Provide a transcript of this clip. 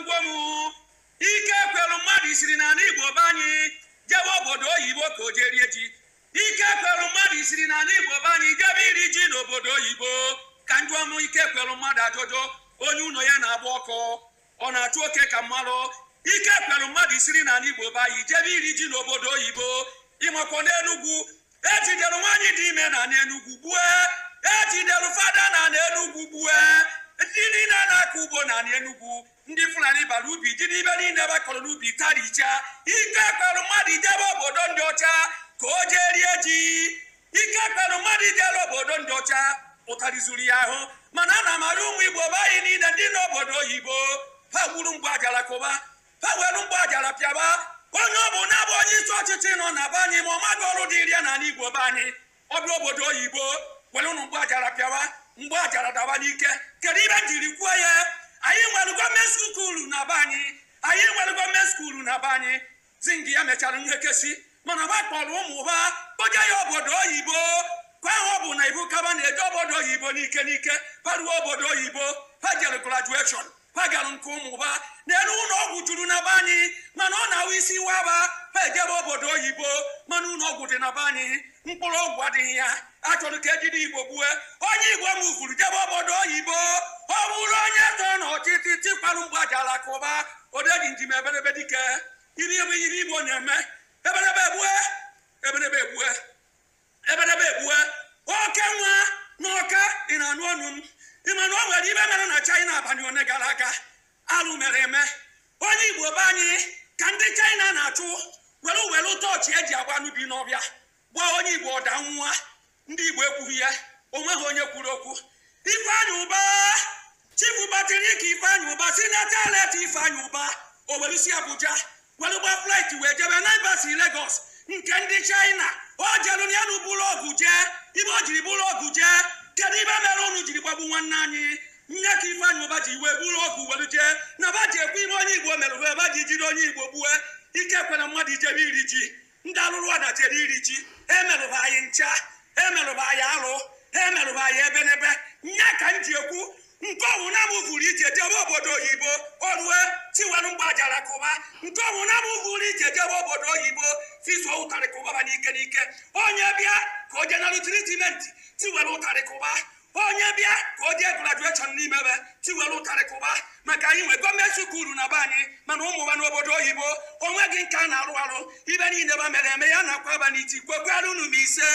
n'ugbo m ike kwelu mmadụ isiri na ala igbo be anyị jebe obodo oyibo ka o jerie ji ike kwelu mmadụ isiri na ala igbo be anyị jebe iri ji n'obodo oyibo ka ndị ọnụ ike kwelu mmadụ ajụjụ onye ụlọ ya na-agba ọkụ ọ na-achụ oke ka mmalụ ike kwelu mmadụ isiri na ala igbo be anyị jebe iri ji n'obodo oyibo ịmakwa n'enugwu ejidere nwaanyị dị ime na n'enugwu gbue ejidere fada na n'enugwu gbue na-akọ ugbo na anị enugwu ndị Fulani bara ubi jiri ibe niile ebe akọrọ n'ubi tarichaa ike kpere mmadụ ijebe obodo ndị ọcha ka o jee rie ji ike kpere mmadụ ijere obodo ndị ọcha ụtarị zuru ya ahụ mana a na amara ụmụ Igbo be anyị niile ndị n'obodo oyibo ha gburu mgbe ajara kụba ha were mgbe ajara pịaba onye ọ bụ na-abụ onye isi ọchịchị nọ na be anyị ma ọ maghị ọrụ dị iri n'ala Igbo be anyị ọbịa obodo oyibo were ụnụ mgbe ajara pịaba mgbe ọ jara daba n'ike kedu ibe jiri kwuo ya anyị nwere gọọmenti skuulu na be anyị anyị nwere gọọmenti skuulu na be anyị zingi ya mechara kesi mana ba kpọrọ ụmụ ụba kpoje ya obodo oyibo kwa ha bụ na ibu kaba na-eje obodo oyibo n'ike n'ike paruo obodo oyibo ha jere graduation ha gara nke ụmụ ụba n'elu ụlọ ọgwụ juru na be anyị mana ọ na-awụ isi waba ha ejebe obodo oyibo mana ụlọ ọgwụ dị na be anyị mkpụrụ ọgwụ adịghị ya achọrọ ka ejide igbo gbue onye igbo mụfuru jebe obodo oyibo ọ bụrụ onye tọ n'ọchịchị tikparụ mgbe aja alakụba odeji njem ebelebe dike iri ebe iri igbo na-eme ebelebe egbue ebelebe egbue ebelebe egbue oke nwa na ọka dị na anụ ọnụ m ịma na nwere ibe mere na chaina abalị one gara aga alụ mere eme onye igbo be anyị ka ndị china na-achụ were were tọọchị eji agba n'ubi bi n'ọbịa gba onye igbo ọda nwa ndị igbo ekwughị ya ha onye kwuru okwu ifeanyị ụba chifu batiriki ifeanyị ụba si na talet ifeanyị ụba owerisi abuja were gba flaịt wee jebe na si legos nke ndị chaina o jelu na yanụ bụrụ ọgụ jee ibe o jiri bụrụ ọgụ jee kedu ibe mere unu jiri gbagbu nwanne anyị nne ka ifeanyị ụba ji wee bụrụ ọgụ were jee na ba ji ekwe ibe onye igbo mere wee ba ji jiri onye igbo gbue ike kwena mmadụ ijebe iri ji ndị alụrụ ọda jere iri ji ha emerụba anyị ncha ha emerụba anyị alụ emerụba anyị ebe n'ebe nya ka m ji ekwu nke ọnwụ na m vụrụ ije jebe obodo oyibo orue tiwere mgbajara kụba nke ọnwụ na m vụrụ ije jebe obodo oyibo tizuo ụtarị kụbaba n'ike n'ike onye bịa ka o jena rutiritimenti tiwere ụtarị kụba onye bịa ka ọ jee grajueshọn n'ime ebe tiwere ụtarị maka anyị nwe gọọmenti ukuru na be anyị mana ụmụ ụmụwa n'obodo oyibo onwe gị nke a na-arụ arụ ibe niile ba mere eme ya na akwa aba n'iti kwekwarụ ise